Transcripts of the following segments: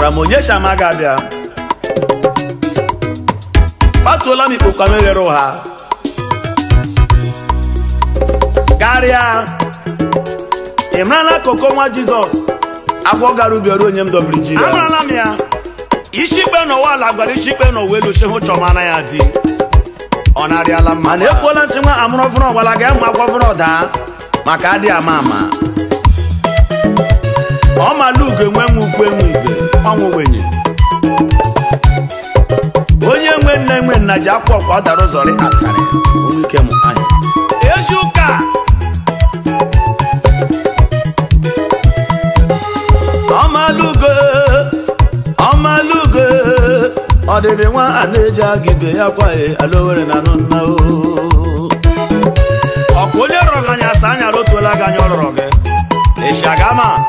gwara m onyesha ga abịa kpatuola m ikpokwa m eghere ụha karịa ị marala koko nwa jizọs agwọ gara ubi ọrụ onye m dobiri ji amarala m ya isi ikpe n'ụwa ala gwara isi ikpe n'ụwa elu chehu chọma na ya dị ọ narịala mma na ekwuola ntị nwa amụrụ ọfụrụ ọgbala ga mụ akwọ ọfụrụ ọdaa maka adịghị ama ama ọmalugo enwe nwe ukwu enwe ibe ọnwụ wenye onye nwe nna enwe nna ji akwa ọkwa ọ dara ụzọrị akarị onwe ike m anya. ezi ụka ọ dịrị nwa a na-eji aga ibe ya kwaghị e, alowere na anụ nna ọkụ onye rọrọ gị anya asa anya rotuola gị anya ọ rọrọ gị ịshagama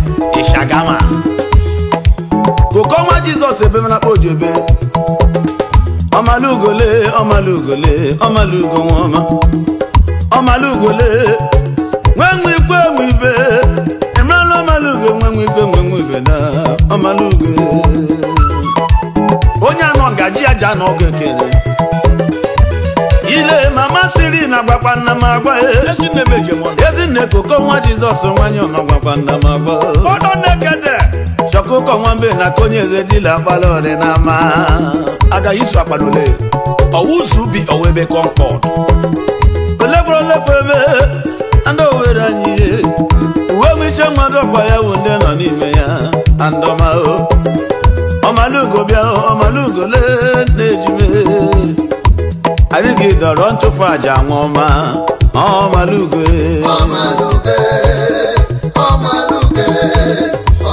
jizọs ebe mana kpa ojebe ọmalugole ọmalugole ọmalugo nwaọma ọmalugole nwenwe ikwe nwe ibe emerela ọmalugo nwenwe ikwe nwenwe ibe na ọmalugo onye anọ ngaji aja ji anọ ọgụ ekele ile mama siri na gwakwa nna m agwa e. ezinne koko nwa jizọs nwanyị ọnọ gwakwa nna m agwa e. akụkọ nwa mbe na aka onye eze dila agbala ọdịnama agaghị isu akpadole ọwụzu ubi owebe kọmpọt olekwerolekwebe ndị owere anyị uwe mmechi mmadụ ọkwa ya wụ ndị nọ n'ime ya andọmao ọmalugo bịa ọmalugo lee na-ejime anyị ga-edọrọ ntụfu aja nwa ọma ọmalugo e. ọmalugo e, ọmalugo e.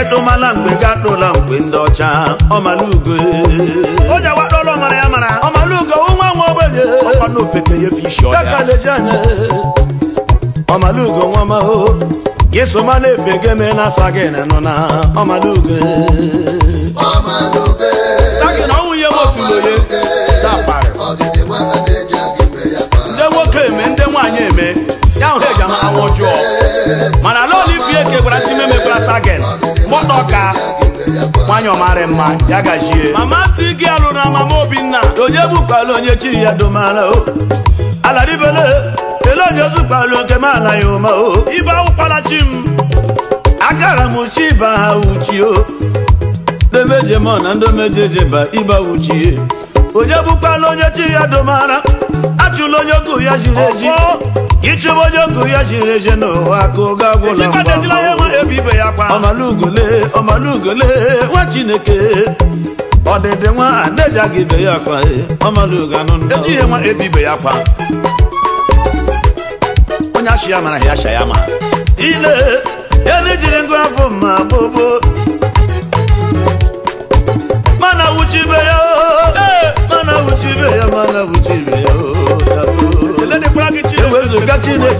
edumala mgbe ga atụla mgbe ndị ọcha ọmalugo onye oh, gbadọlọ mara ya mara ọmalugo oh, nwa oh, nwa ogbenye ọkwana ofeke ya fishi ọya kakaleji anya ọmalugo nwa maho yesoma na-efe geme na sagin nọ na ọmalugo sagin ọnwụ ihe motulo ye tapari ndị nwoke eme ndị nwaanyị eme ya hụ eji ha anwụ jụọ mana ala olivie ke gwara mee gwara sagin ọka nwanyị ọmara mma ya gajie mama tigi alụrụ na mama obinna onye bụkwala onye chi ya domara o oh. aladibele ele onye ozukpalụ nke m anaghị ụma o oh. ibe awụkwala chi m agara m chi ibe ha uchi o oh. ndomejemọ na ndomejejeba ibe uchie eh. onye bụkwala onye chi ya domara achụla onye ogu ya jiri eji ịchụba onye ogu ya jiri eje n'ụwa ka oge agwụla ọmalugole ọmalugole nwa chineke ọdịdị nwa aga ibe ya akwa ọmalugo e, anụ ejighị nwa ebibe ya kwa onye achị ya mara ya acha ya ma ile ele jiri ngụ afọ mma gbogbo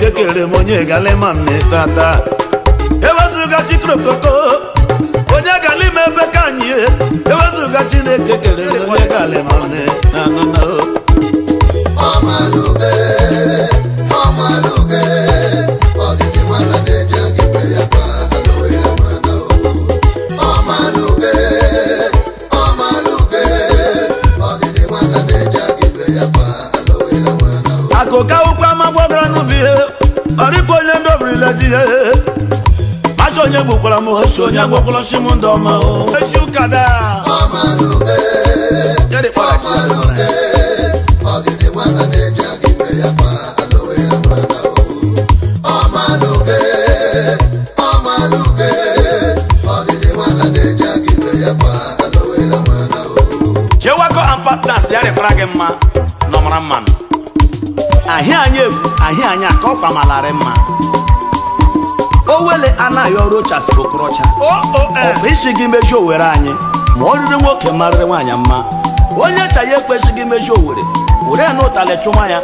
ekere m onye galima tata ewezuga chikrokoko onye galima ebe ka anyị ewezuga chineke kere onye galima nne na ọma gbabara n'ubi ya ọ dịkwa onye ndị obrila di ya macha onye gbokwara m ochi onye gbokwara chi m ndị ọma echi ụka daa ọdịdị nwata na-eji ya ma partners ya rekwara gị mma na ọmara mmanụ ahịa anyị ebu ahịa anyị ka ọ kpamalari mma o wele anaghị ọrụ ochasiri okorocha e. ọbụ isi gị mejuo owere anyị ma ọ riri nwoke marịrị nwaanyị mma onye cha ya ekwechighị mejuo owere were na ụtalị chụwa ya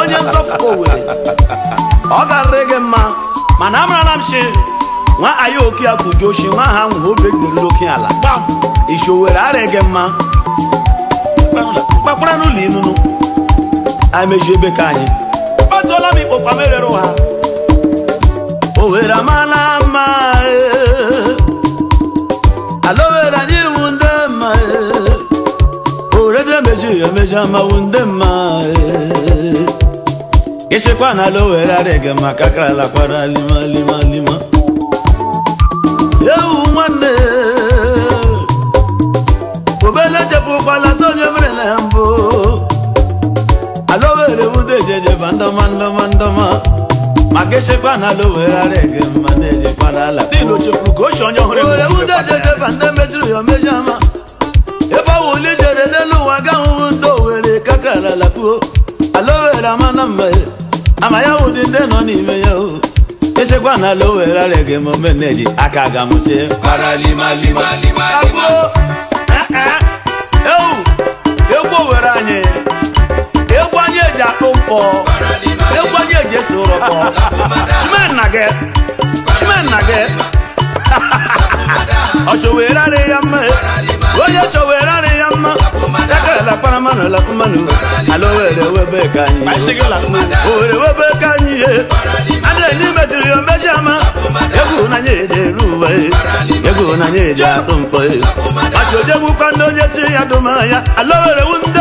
onye nzọpụta owere ọ ga garịrị gị mma mana amarala m shi nwa ayaoke akụju oshi nwa ha nwụrụ obi egiriri oke ala isi owere arịghị gị mma kpakpara n'ụlọ inunu emeju ebe ka anyị ọ tụọla m ikpokpa m erere ụha owere amala mma alowere anyị iwu ndị mma orede emeju emeju amawu ndị mma ịchekwa na alowere adịghị maka karala kwara lima lima lima echekwa na ala owere ara ege mma na-ejekwa n'ala dịnụ chefuru ka ochi onye ọhụrụ oreudededeba nne mejuru ya omejọ ama ebe ọwụ uli jere n'elu ụwa ga ahụhụ ndị owere kakara ala puo ala owere ama na mma ama ya wụ dị ndị nọ n'ime ya o echekwa na ala owere ara ege ma ome na-eji aka ga mụchie eh, eh. ewu egwu owere anyị egwu anyị eji akpụ mkpọ ekwaje jesu rọpọ shimenage shimenage ọṣọwere ari ya mma onye ṣọwere ari ya mma ekere lakparamanụ lakpụmanụ ala owere webe ka anyị owere webe be kanyi, ye ni mejiri ya meji ama egwu n'anya eje eru uwe egwu n'anya eje atụ mkpọ ọchọjegwukwa ndị onye chi ya dụma ya ala owere wu ndị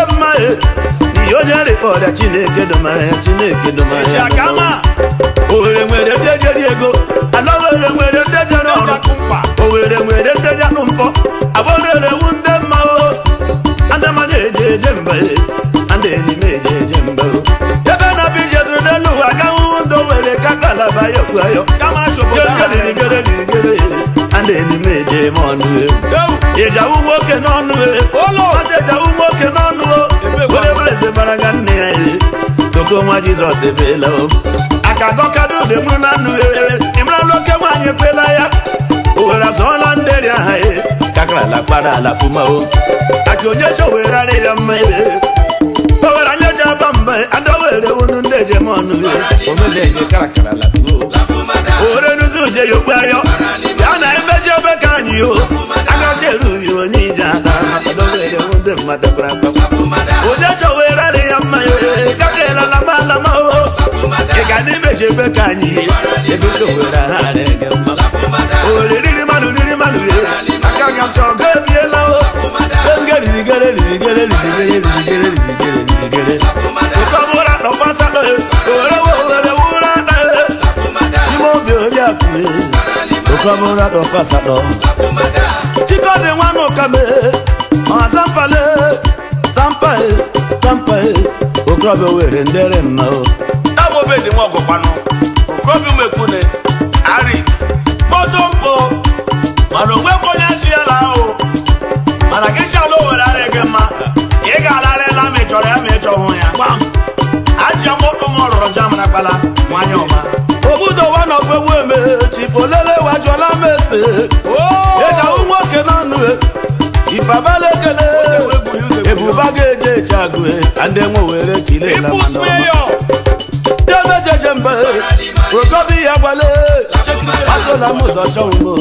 onye rịkpọrịa chineke domara ya chineke domara ya ohere nwere ndeje ego ala ohere nwere ndeje n'ọrụ ohere nwere ndeje anụ mfọ abụrerewu ndị mmanwụ adamada e. eje eje mba ada enime eje eje mba ebe na bụ ije dụrụ n'elu ụwa gahụhụ ndụ nwere ka kalaba ya okwu ayọ gerigere rigere ana enime eje eme ọnụ e. ewu ejawu nwoke n'ọnụ ụlọ e. ejawu nwoke n'ọnụ onye bụrụ eze bara nga nne ya ihe doko nwa jizọs ebeela o aka gọkado oge mụrụ na nnụ ee ịmaralụ oke nwaanyị ekwela ya owere azụọla nderi aha e kakarala kpara ala puma o aka onye chọ were arị ya mma ee owere anya ji aba mba adọwere unu ndị ejem ọnụ e omedeje karakara lapuo owere nuzi uje ya okpe ayọ ya na emeji ebe ka anyị o agachi erughị onye ije ada adọwere ndị mmadụ braba udechọwerarị eh, eh, oh, oh. ya mma ịgakeela lama lama o ị ga na eh. imeji oh, ebe ka anyị ebe chọwere ha adịghị mma oriri mmanụ riri mmanụ riri aka ga m chọọ ga ebiela o oge ririgere ririgere ririgere ririgere ririgere ụkọ bụra nọkwasatọ owere owere wụra na ime obi onye akụ Okramura do fasado Chikode wano kame Mazapale sampa okorobịa were ndere nna abụbedị m ọgụkwanụ ari kpọtụ mpụ mana o. bụ onye azụ ahụ mana gị si were owere ara gị mma ị ga ala ela ma ị chọrọ ya ma ị ya gwa m ji mkpọtụ m ọ rụrụ ọma andemo were kile la mandoma deme jejembe ogobi yagwale watola moto sọhunmo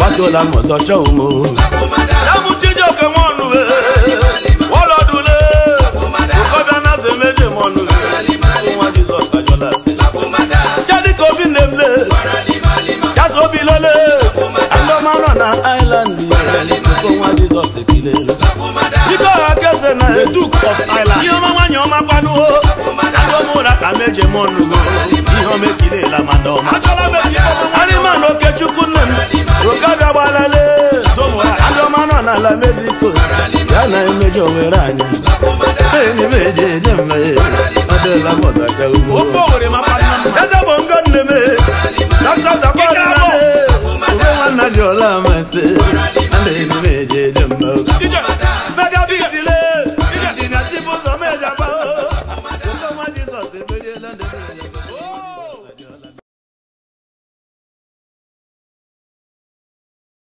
watola moto sọhunmo yamu jíjọke mọnu e wọlọdule ogobi lole andomaran na island nwa Jizọs ekilelu dike ọha keze na the na of Ireland ihe ọma nwanyị ọma ihe ọma ọma nọ n'ala ya na Hallelujah